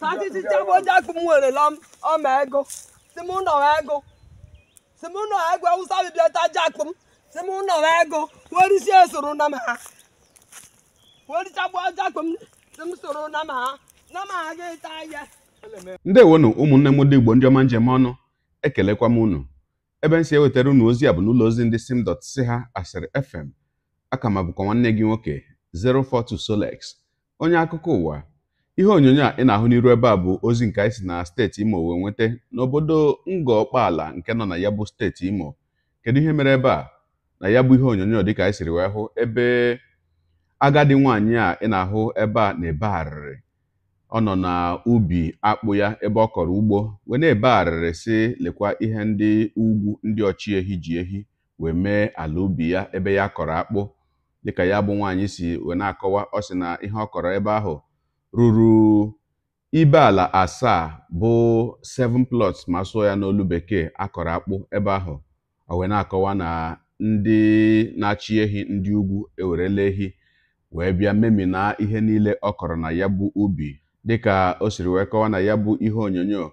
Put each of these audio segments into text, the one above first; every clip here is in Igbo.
tachichichaojiakpụ m werela ego ego ha soro ha ụmụnne m ndị igbo ndị ọma njem ọnụ ekelekwa m unu ebe m si ewetara unu ozi a bụ n'ụlọ ozi ndị simdot si ha asịrị fm aka ma bụkwa nwanne gị nwoke 042 Solex onye akụkọ ụwa ihe onyonyo a ị na-ahụ n'iru ebe a bụ ozi nke anyị si na steeti imo wee nweta n'obodo Ngọkpaala nke nọ na ya bụ steeti imo kedu ihe mere ebe a na ya bụ ihe onyonyo dịka anyị siri wee hụ ebe agadi nwaanyị a ị na-ahụ ebe a na-ebe arịrị ọ nọ na ubi akpụ ya ebe ọ kọrọ ugbo wee na-ebe arịrị si lekwa ihe ndị ugwu ndị ọchị ehi ji ehi wee mee ala ubi ya ebe ya kọrọ akpụ dịka ya bụ nwaanyị si wee na-akọwa ọ sị na ihe ọ kọrọ ebe ahụ ruru ibeala asaa bụ 7 plots ma sụọ ya n'olu bekee akọrọ akpụ ebe ahụ o wee na-akọwa na ndị na-achị ehi ndị ugwu ewerela ehi wee bịa na ihe niile ọ kọrọ na ya bụ ubi dịka o siri wee kọwa na ya bụ ihe onyonyo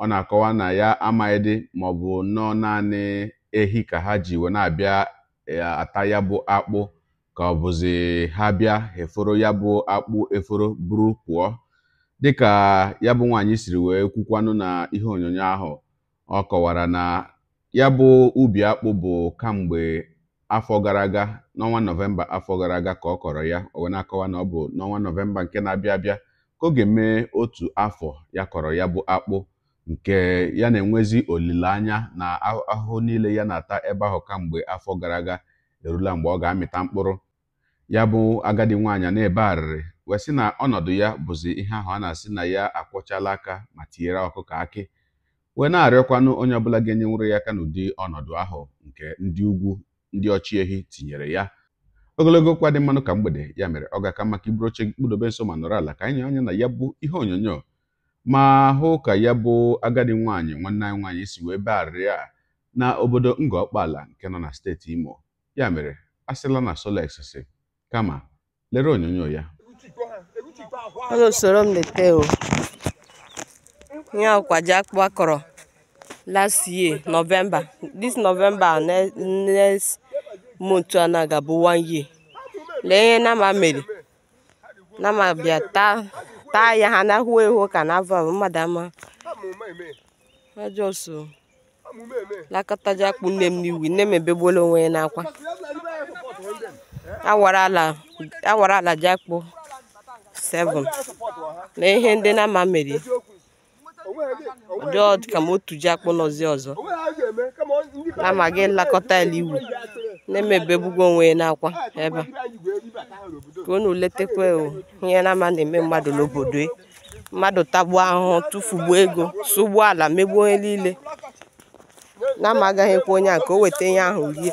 ọ na-akọwa na ya amaghịdị ma ọ bụ nnọọ naanị ehi ka ha ji wee na-abịa e, ata ya bụ akpụ ka ọ bụzi ha bịa eforo ya bụ akpụ eforo buru pụọ dịka ya bụ nwaanyị siri wee kwukwanụ na ihe onyonyo ahụ ọ kọwara na ya bụ ubi akpụ bụ kamgbe afọ gara aga n'ọnwa nọvemba afọ gara aga ka ọ kọrọ ya o wee na-akọwa na ọ bụ n'ọnwa nọvemba nke na-abịa abịa ka ọ ga-eme otu afọ ya kọrọ ya bụ akpụ nke ya na-enwezi olileanya na ahụhụ niile ya na-ata ebe ahụ kamgbe afọ gara aga erula mgbe ọ ga-amịta mkpụrụ ya bụ agadi nwaanyị na-ebe arịrị wee sị na ọnọdụ ya bụzi ihe ahụ a na-asị na ya akwọchala aka ma tinyere ọkụkọ akị wee na-arịọkwanụ onye ọbụla ga enye nwere ya aka n'ụdị ọnọdụ ahụ nke ndị ugwu ndị ọchị ehi tinyere ya ogologo kwa dị mmanụ ka mgbede ya mere ọ ga-aka maka iburu oche kpụdobe nso ma nọrọ ala ka anyị anya na ya bụ ihe onyonyo ma hụ ka ya bụ agadi nwaanyị nwanne anyị nwaanyị si wee be arịrị a na obodo Ngọkpala nke nọ na steeti Imo ya mere a sịla na Solex si kama lere onyonyo ya ọ na usoro m leta o ihe ọkwa ji akpụ akọrọ last year november this november next month aga bụ one year lee ihe nama mere nama bịa taa ya ha na-ahụ ehu ka na ava mmadụ ama ajọ so lakọtaja akpụ nne m n'iwu nne m ebegbuola onwe ya n'akwa awara ala Jakpo 7 na ihe ndị n'ama ama mere ụdị ka m otu akpụ nọzi ọzọ na-amaghị nlakọta ala iwu na-emebebugwo onwe ya n'akwa ebe ka unu letekwa ihe na-ama na-eme mmadụ n'obodo e. mmadụ tagbuo ahụhụ tụfugbuo ego sụgbuo ala megbuo onye niile na-amagaghịkwa onye a ka o weta ihe ahụ rie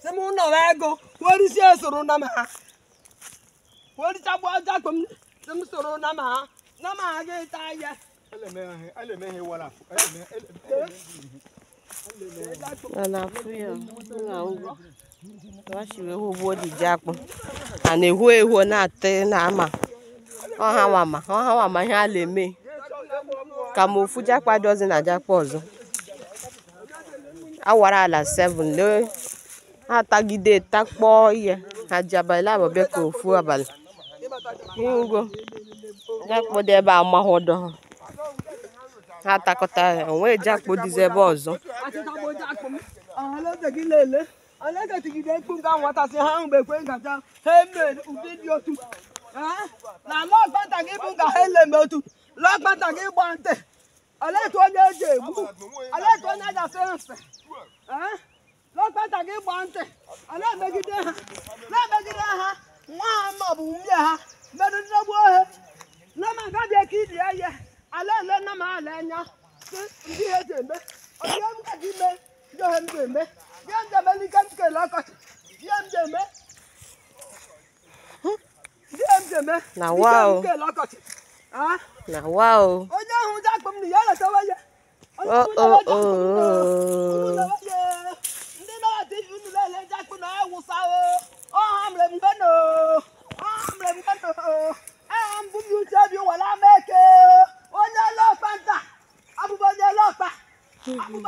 si m nọrọ ego werisia soro na m ha werichagbu ajakpo m si m soro na m ha na m ha gị ta ahịa na-afụ ya achiri ewu ugbo diji akpụ a na-ehu ehu na-atị na ama ọhawama ọhawama ihe a na-eme ka ma ofu jakpa dị na jakpa ọzọ awara ala 7 lee ha atagide takpọọ ihe na ji abalị ka ofu abalị ugo jakpodo ebe a mahodo ha ha atakọta ya onwee jakpo ebe ọzọ na-etegide ha e na gị bụ nka ha eleme otu gị gba ntị onye eji egbu lọkpata gị gbaa ntị ala emegide ha na-emegide ha nwa ha ma ọ bụ nwunye ha merụdegbu ohe lema gabi ka iri ya ihe ala ele nna m ala anya ndị ihe ji eme ọdịhe m ka gị mee ndị ohe m ji eme ihe m ji eme n'ike m kele ọkọchị ihe m ji eme ihe m ji eme n'ike m kele ọkọchị na wa o onye ahụ ji akpọ m na ya letawa ya onye ahụ ji awụsawo ọhamre mbeno ọhamre mbeno aha mbụ m uche obi were ama eke onye ọlọkpa nta abụbụ onye ọlọkpa abụbụ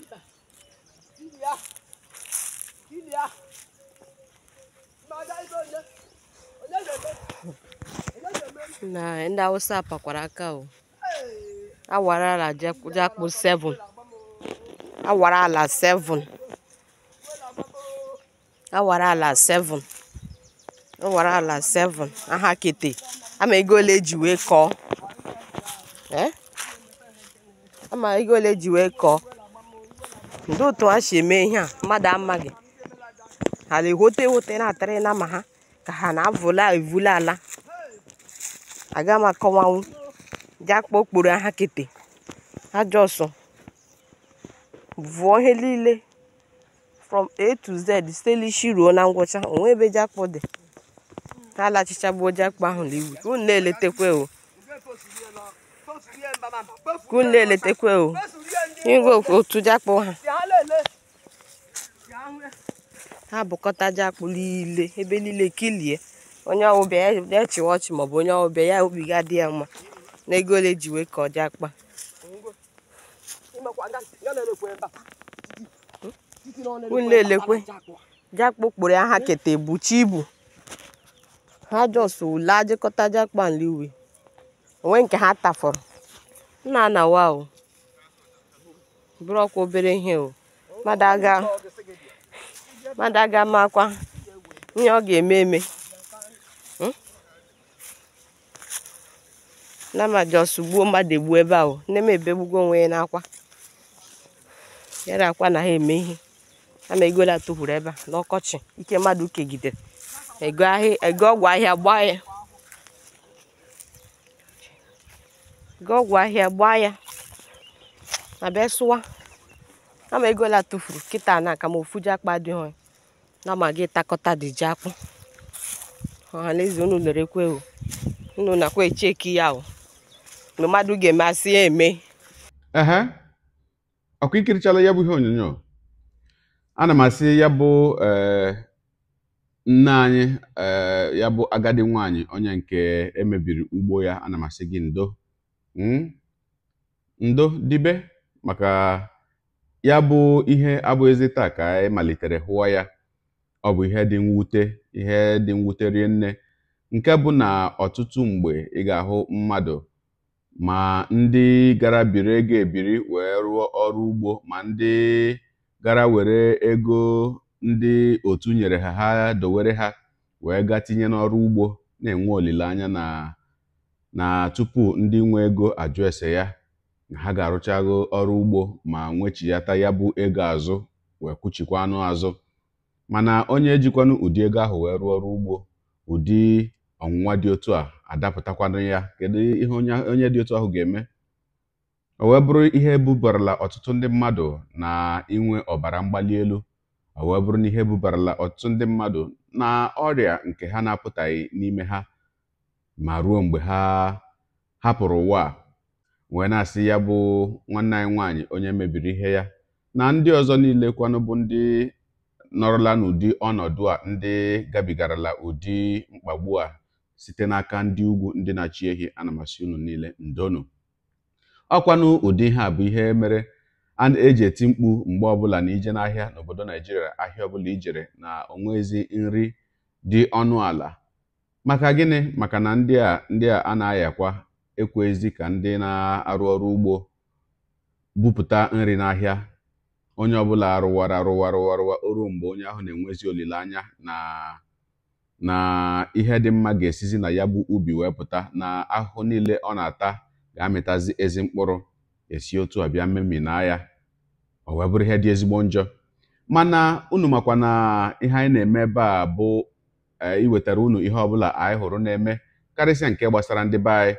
ibe ili ya ili ya na ndị Hausa apakwara aka o awara ala jakpụ 7 awara ala 7 awara ala 7 awara ala 7 aha kete ama ego ole eji wee kọọ ama ego ole ji wee kọọ eh? ndị otu a si eme ihe a mmadụ amaghị ha na-ehote ehote na-atara na ma ha ka ha na-avụla evula ala aga m akọwanwu ji okporo ha kete ajọ ọsọ vụọ ihe niile from a to z sitelishi ruo na ngwụcha onwe ebe ji akpọ dị ha alachichagbuo ji ahụ n'iwu ka unu na-eletekwe o na-eletekwe o Igwe otu jakpụ ha ha bụkọtaja Jakpo niile ebe niile kilie onye ọwụbịa ya echi ọchị maọbụ onye ọwụbịa ya obi ga ya mma na ego ole ji wee kọọ jakpa unu elekwe Jakpo kpụrụ ya ha keta buchi ibu ha jọs ule ajịkọta jakpa uwe onwe nke ha tafọrọ nna na wa o bụrụ ọkwa obere ihe o mmadụ aga makwa ihe ọ ga-eme eme hmm? nama jos gbuo mmadụ egbuo ebe ahụ nne m ebegbugo onwe ya n'akwa yara akwa na ha eme ihe ama ego la tụhụrụ ebe a n'ọkọchị ike mmadụ kegidere ego ọgwụ ahịa gbaa ya ego ọgwụ ahịa gbaa ya na bịa sụwa ama ego la tụfuru kịta na aka ma ofu ji akpa dị adịghị na ma gị takọta dị ji akpụ ọhaneze unu lere ekwe o unu nakwa echeki ya o mmadụ ga-eme asị ya eme ehe ọkụ ikirichala ya bụ ihe onyonyo ana m asị ya bụ eh, nne anyị eh, ya bụ agadi nwanyị onye nke emebiri ugbo ya ana m asị gị ndo hmm? ndo dibe maka ya bụ ihe abụghịzi taa ka anyị malitere hụwa ya ọ bụ ihe dị mwute ihe dị mwute rie nne nke bụ na ọtụtụ mgbe ị ga-ahụ mmadụ ma ndị gara biri ego ebiri wee rụọ ọrụ ugbo ma ndị gara were ego ndị otu nyere ha ha dowere ha wee gaa tinye n'ọrụ ugbo na-enwe olileanya na na tupu ndị nwe ego ajụ ese ya ha ga-arụchago ọrụ ugbo ma nwechiyata ya bụ ego azụ wee kwuchikwa anụ azụ mana onye ejikwanụ ụdị ego ahụ wee rụọ ọrụ ugbo ụdị ọnwụnwa dị otu a adapụtakwanụ ya kedu ihe onye dị otu ahụ ga-eme o wee bụrụ ihe bubarala ọtụtụ ndị mmadụ na inwe ọbara mgbali elu o wee bụrụ na ihe bubarala ọtụtụ ndị mmadụ na ọrịa nke ha na-apụtaghị n'ime ha ma ruo mgbe ha hapụrụ ụwa wee na-asị ya bụ nwanne anyị nwaanyị onye mebiri ihe ya na ndị ọzọ niile kwanụ bụ ndị nọrọla n'ụdị ọnọdụ a ndị gabigarala ụdị mkpagbu a site n'aka ndị ugwu ndị na-achị ehi anamasị unu niile ndonu ọkwanụ ụdị ihe a bụ ihe mere a na-eji eti mkpu mgbe ọbụla na ije n'ahịa n'obodo naijiria ahịa ọbụla ijere na onwezi nri dị ọnụ ala maka gịnị maka na ndị a ndị a a na-ayakwa ekwezi ka ndị na-arụ ọrụ ugbo bupụta nri n'ahịa onye ọbụla rụwara rụwa rụwa rụwa oru mgbe onye ahụ na-enwezi olileanya na na ihe dị mma ga-esizi na ya bụ ubi wee pụta na ahụhụ niile ọ na-ata ga-amịtazi ezi mkpụrụ esi otu a bịa mmemi na ya ọ wee bụrụ ihe dị ezigbo njọ mana unu makwa na ihe anyị na-eme ebe a bụ eh, iwetara unu ihe ọbụla anyị hụrụ na-eme karịsịa nke gbasara ndị be anyị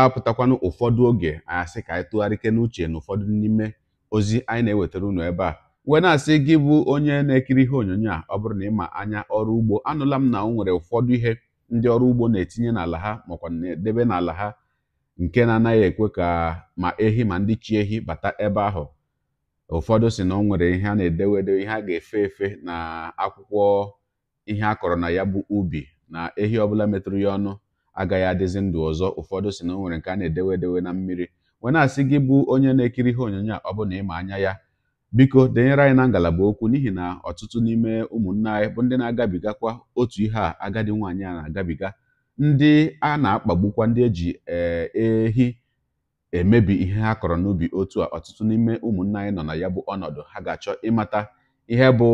apụtakwanụ ụfọdụ oge asị ka anyị tụgharịke n'uche na ụfọdụ n'ime ozi anyị na-ewetara unu ebe a wee na-asị gị bụ onye na-ekiri ihe onyonyo a ọ bụrụ na ịma anya ọrụ ugbo anụla m na ọ nwere ụfọdụ ihe ndị ọrụ ugbo na-etinye n'ala ha makwa na-edebe n'ala ha nke na-anaghị ekwe ka ma ehi ma ndị chi ehi bata ebe ahụ ụfọdụ si na ọ nwere ihe a na-edewedo ihe a ga-efe efe na akwụkwọ ihe a kọrọ na ya bụ ubi na ehi ọbụla metụrụ ya ọnụ agaghị adịzi ndụ ọzọ ụfọdụ si na nwere nke a na-edewe edewe na mmiri wee na-asị gị bụ onye na-ekiri ihe onyonyo a ọ bụ na ịma anya ya biko denyere anyị na ngalaba okwu n'ihi na ọtụtụ n'ime ụmụnne anyị bụ ndị na-agabigakwa otu ihe a agadi nwaanyị a na-agabiga ndị a na-akpagbukwa ndị eji eh, ehi emebi ihe ha kọrọ n'ubi otu a ọtụtụ n'ime ụmụnne anyị nọ na ya bụ ọnọdụ ha ga-achọ ịmata ihe bụ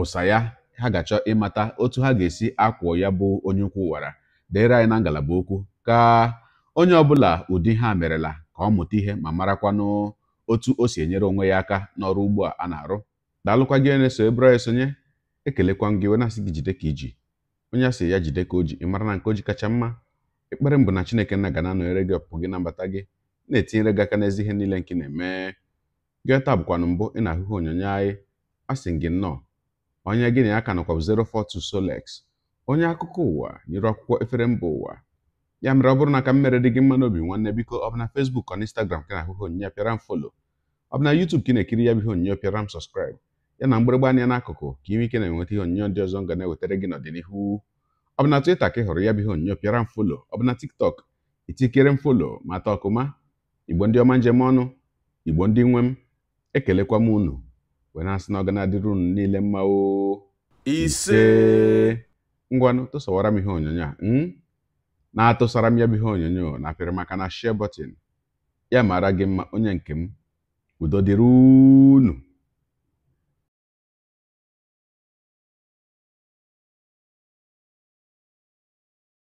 ụsa ya ha ga-achọ ịmata otu ha ga-esi akwụọ ya bụ onye ukwu wara deere anyị na ngalaba okwu ka onye ọbụla ụdị ha merela ka ọ mụta ihe ma marakwanụ otu o si enyere onwe ya aka n'ọrụ ugbo a na-arụ daalụkwa gị na-eso ebụra esonye ekelekwa m gị wena na-asị gị jide ka iji onye asị ya jide ka o ji ị mara na nke o ji kacha mma ekpere mbụ na chineke nna ga na-anọnyere gị ọpụpụ gị na mbata gị na-etinyere gị aka n'ezi ihe niile nke na-eme gị taa bụkwanụ mbụ ị na-ahụhụ onyonyo anyị asị gị nnọọ onye gị na ya ka nọkwa 042 Solex onye akụkọ ụwa nyere akwụkwọ efere mba ụwa ya mere ọ bụrụ na ka m mere dị gị mma n'obi nwanne biko ọ bụ na fesbuk ọ na instagram ka na ahụhụ onyinye pịara m folo ọ bụ na yutub ka ị na-ekiri ya bụ ihe onyinye pịara m sọskraịb ya na mgbịrịgba anya n'akụkụ ka ime ike na-enweta ihe onyinye ndị ọzọ nga na-ewetara gị n'ọdịnihu ọ bụ na twita ka ị hụrụ ya bụ ihe onyinye pịara m folo ọ bụ na tiktok itikere m folo ma taa ọkụma igbo ndị ọma njem ọnụ igbo ndị nwe m ekelekwa m unu wee na-asị na ọ ga na-adịrị unu niile mma ise ngwanụ tụsawara m ihe onyonyo a hmm? na-atụsara m ya bụ ihe onyonyo na apịrị maka na share button ya mara gị mma onye nke m udo dịrị unu